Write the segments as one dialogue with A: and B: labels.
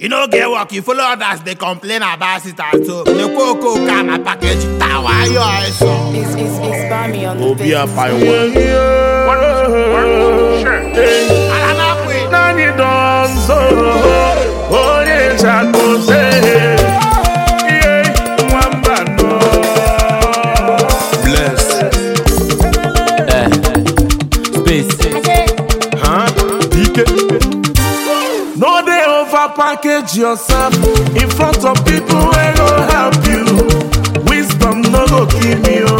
A: You no get work, you follow others, they complain about it at home. The cocoa can a package tower, your eyes on. It's, it's, it's by me on the Obi up by one. One, one, sure. Hey. package yourself in front of people wey go help you wisdom no go kill me o. Oh.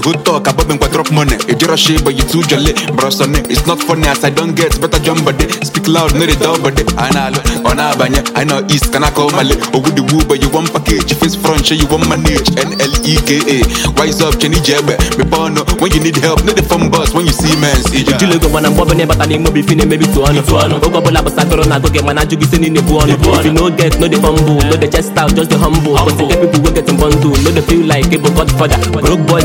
B: You go talk about me quite money. If you're a shit, but you too jolly. Bro, son, it's not funny as I don't get better jump body. Speak loud, no they down body. I know, on Abanya, I know East, can I call Mali? Oh, good woo, but you want package. Face front, you want manage. N
C: L E K A. Wise up, Chenny Jebbe. Me bono, when you need help, no the phone boss when you see man. See, look when I'm bobbing, but I need more maybe Go no get, no the fumble, no the no the feel like it, but Broke boys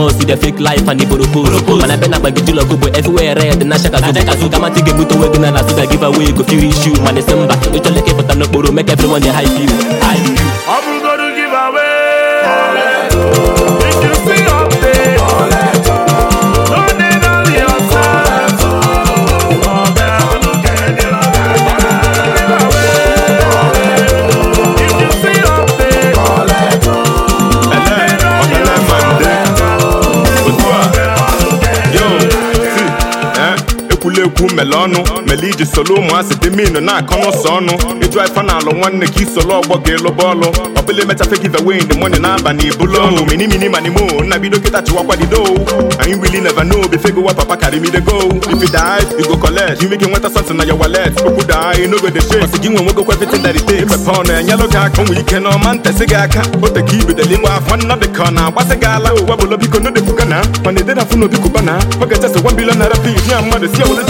C: boss with the fake life and the boroko mana bena gbagijulọ go but everywhere red na shaka so baka kama ti ga-ebute onwe gị na na so ga give away go feel issue mana esi mba ịchọleke pụta n'okporo make everyone dey hype you
B: na-ekwu mele ọnụ mele iji solo ụmụasị dị minu na-akọ n'ụsọ ọnụ ịjụ ife na alụ nwanne ka isolo ọgbọ ga-eloba ọlụ ọbụla emechafe give away the money na-aba na ibulu ọnụ mini mini mani mo nna bido kịta anyị really never know before go papa carry me go if you go collect nweta something na your wallet okwu daa no go dey shake ọsị gị nwe nwego ike n'ọma gị aka o teka nwa afọ nna dị na-agbasị gị ala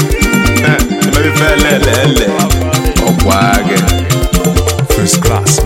B: melelele ọkwa gị
A: first class